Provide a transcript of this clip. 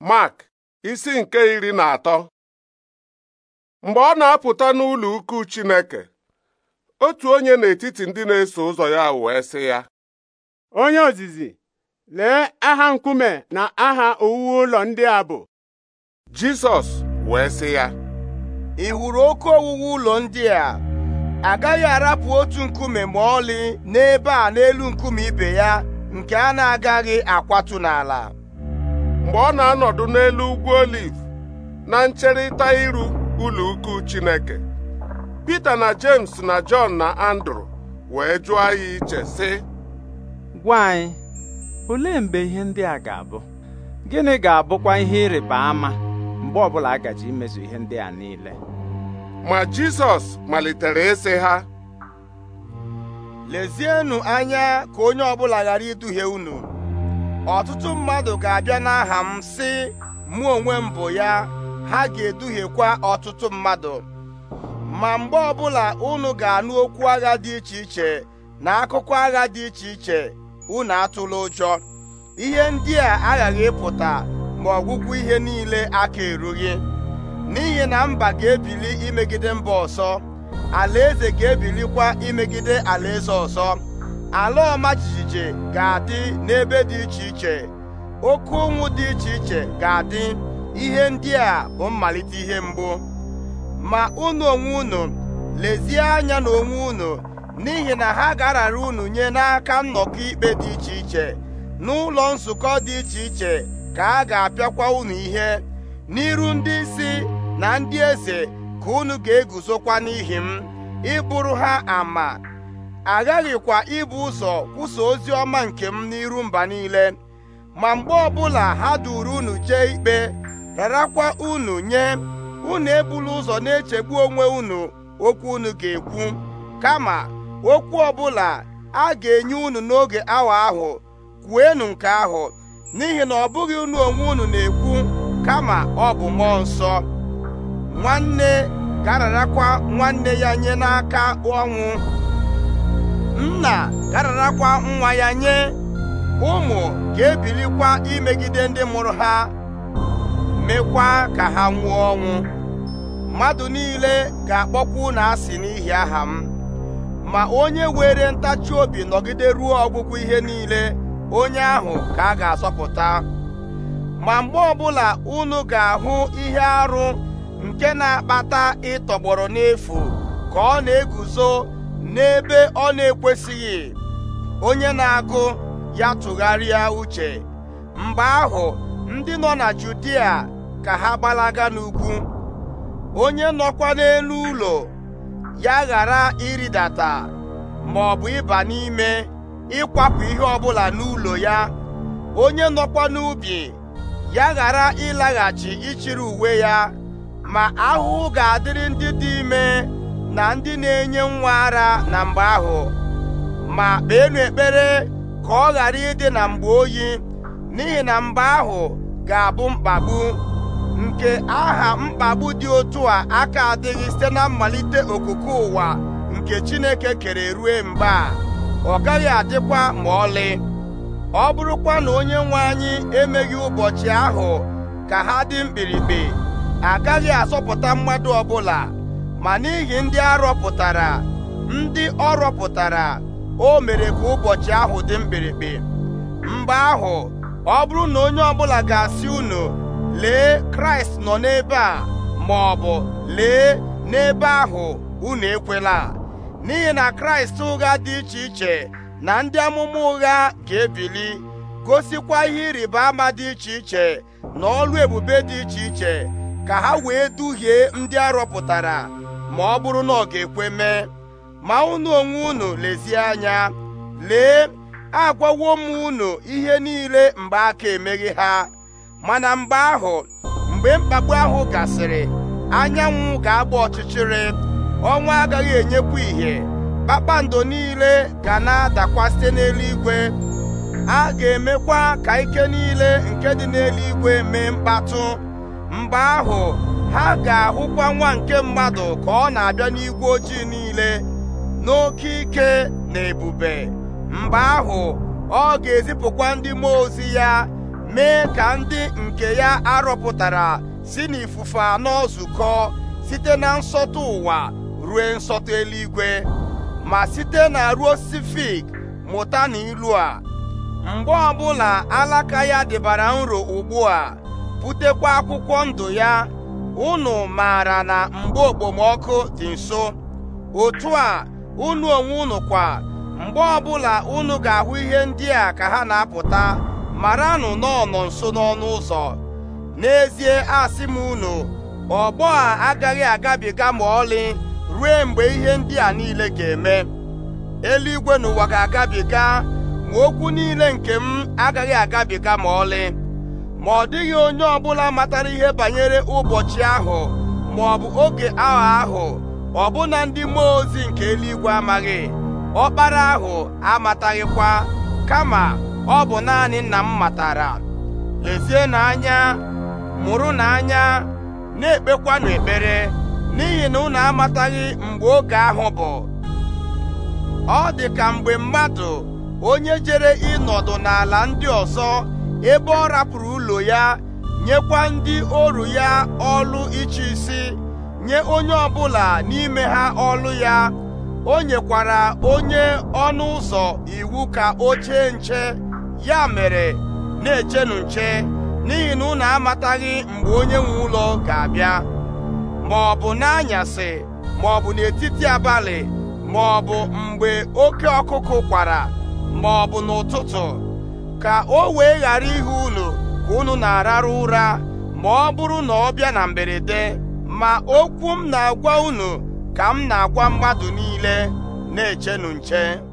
mak isi nke iri na atọ mgbe ọ na-apụta n'ụlọ ukwu Chineke otu onye n'etiti ndị na-eso ụzọ ya wee sị ya onye ozizi lee aha nkume na aha owuwe ụlọ ndị a bụ Jisọs wee sị ya ị hụrụ oke owuwe ụlọ ndị a agaghị arapụ otu nkume ma ọlị n'ebe a n'elu nkume ibe ya nke a na-agaghị akwatụ n'ala mgbe ọ na-anọdụ n'elu ugwu oliv na ncherịta iru ụlọ ukwu Chineke Pita na James na john na Andrew wee jụọ ya iche sị gwa anyị olee mgbe ihe ndị a ga-abụ gịnị ga-abụkwa ihe ịrịba ama mgbe ọbụla a gaji imezu ihe ndị a niile ma Jizọs malitere ịsị ha lezienụ anya ka onye ọbụla ghara iduhie unu ọtụtụ mmadụ ga-abịa n'aha m si mụ onwe m bụ ya ha ga-eduhiekwa ọtụtụ mmadụ ma mgbe ọbụla unu ga-anụ okwu agha dị iche iche na akụkọ agha dị iche iche unu atụla ụjọ ihe ndị a aghaghị ịpụta ma ọgwụgwụ ihe niile aka erughị n'ihi na mba ga-ebili imegide mba ọzọ alaeze ga-ebilikwa imegide alaeze ọzọ ala ọma jijiji ga-adị n'ebe dị iche iche oke ụnwụ dị iche iche ga-adị ihe ndị a bụ mmalite ihe mbụ ma unu onwe unu lezie anya na onwe unu n'ihi na ha ga-arara unu nye n'aka nnọkọ ikpe dị iche iche n'ụlọ nzukọ dị iche iche ka a ga-apịakwa unu ihe n'iru ndị isi na ndị eze ka unu ga-eguzokwa n'ihi m ịbụrụ ha ama aghaghịkwa ibu ụzọ kwụsa ozi ọma nke m n'iru mba niile ma mgbe ọbụla ha duru unu jee ikpe rarakwa unu nye unu ebula ụzọ na-echegbu onwe unu okwu unu ga-ekwu kama okwu ọbụla a ga-enye unu n'oge awa ahụ kwuenu nke ahụ n'ihi na ọ bụghị unu onwe unu na-ekwu kama ọ bụ mmụọ nsọ nwanne ga-ararakwa nwanne ya nye n'aka ọnwụ nna gararakwa nwa ya nye ụmụ ga-ebilikwa imegide ndị mụrụ ha mekwa ka ha nwụọ ọnwụ mmadụ niile ga-akpọkwa na asị n'ihi aha m ma onye were ntachi obi nọgide ruo ọgwụgwụ ihe niile onye ahụ ka a ga-asọpụta ma mgbe ọbụla unu ga-ahụ ihe arụ nke na-akpata ịtọgbọrọ n'efu ka ọ na-eguzo n'ebe ọ na-ekwesịghị onye na-agụ ya tụgharịa uche mgbe ahụ ndị nọ na Judia ka ha gbalaga n'ugwu onye nọkwa n'elu ụlọ ya ghara ịrịdata ma ọ bụ ịba n'ime ịkwapụ ihe ọbụla n'ụlọ ya onye nọkwa n'ubi ya ghara ịlaghachi ịchịrị uwe ya ma ahụhụ ga-adịrị ndị dị ime na ndị na-enye nwa ara na mgbe ahụ ma kpeenụ ekpere ka ọ ghara ịdị na mgbe oyi n'ihi na mgbe ahụ ga-abụ mkpagbu nke aha mkpagbu dị otu a aka adịghị site na mmalite okoko ụwa nke Chineke kere rue mgbe a ọ gaghị adịkwa ma ọlị ọ bụrụkwa na onye nwe anyị emeghị ụbọchị ahụ ka ha dị mkpirikpi agaghị asọpụta mmadụ ọbụla ma n'ihi ndị arọpụtara ndị ọ rọpụtara o mere ka ụbọchị ahụ dị mkpirikpi mgbe ahụ ọ bụrụ na onye ọbụla ga-asị unu lee kraịst nọ n'ebe a ma ọ bụ lee n'ebe ahụ unu ekwela n'ihi na kraịst ụgha dị iche iche na ndị amụma ụgha ga-ebili gosikwa ihe ịrịba ama dị iche iche na ọlụ ebube dị iche iche ka ha wee duhie ndị arọpụtara ma ọ bụrụ na ọ ga-ekwe mee ma unu onwe unu lezie anya lee agwawo m unu ihe niile mgbe aka emeghị ha mana mgbe ahụ mgbe mkpagbu ahụ gasịrị anyanwụ ga-agba ọchịchịrị ọnwa agaghị enyekwu ìhè kpakpando niile ga na-adakwa site n'eluigwe a ga-emekwa ka ike niile nke dị n'eluigwe mee mkpatụ mgbe ahụ ha ga-ahụkwa nwa nke mmadụ ka ọ na-abịa n'igwe ojii niile n'oke ike na ebube mgbe ahụ ọ ga-ezipụkwa ndị mmụọ ozi ya mee ka ndị nke ya arọpụtara si n'ifufe anọ zukọ site na nsọtụ ụwa rue nsọtụ eluigwe ma site na ruo osisi mụta na ilu a mgbe ọbụla alaka ya dịbara nro ugbu a butekwa akwụkwọ ndụ ya unu maara na mgbe okpomọkụ dị nso otu a unu onwe unu kwa mgbe ọbụla unu ga-ahụ ihe ndị a ka ha na-apụta maranụ nọ nso n'ọnụ ụzọ n'ezie asị m unu ọgbọ a agaghị agabiga ma ọlị ruo mgbe ihe ndị a niile ga-eme eluigwe n'ụwa ga-agabiga ma okwu niile nke m agaghị agabiga ma ọlị ma ọ dịghị onye ọbụla matara ihe banyere ụbọchị ahụ ma ọ bụ oge ahụ ahụ ọbụna ndị mmụọ ozi nke eluigwe amaghị ọkpara ahụ amataghịkwa kama ọ bụ naanị nna m matara lezie n'anya mụrụ n'anya na-ekpekwanụ ekpere n'ihi na unu amataghị mgbe oge ahụ bụ ọ dị ka mgbe mmadụ onye jere ịnọdụ n'ala ndị ọzọ ebe ọ rapụrụ ụlọ ya nyekwa ndị oru ya ọlụ iche isi nye onye ọbụla n'ime ha ọlụ ya o nyekwara onye ọnụ ụzọ iwu ka o nche ya mere na-echenụ nche n'ihi na unu amataghị mgbe onye nwe ụlọ ga-abịa ma ọ bụ n'anyasị ma ọ bụ n'etiti abalị ma ọ bụ mgbe oke ọkụkụ kwara ma ọ bụ n'ụtụtụ ka o wee ghara ihe unu ka unu na-ararụ ụra ma ọ bụrụ na ọ bịa na mberede ma okwu m na-agwa unu ka m na-agwa mmadụ niile na-echenu nche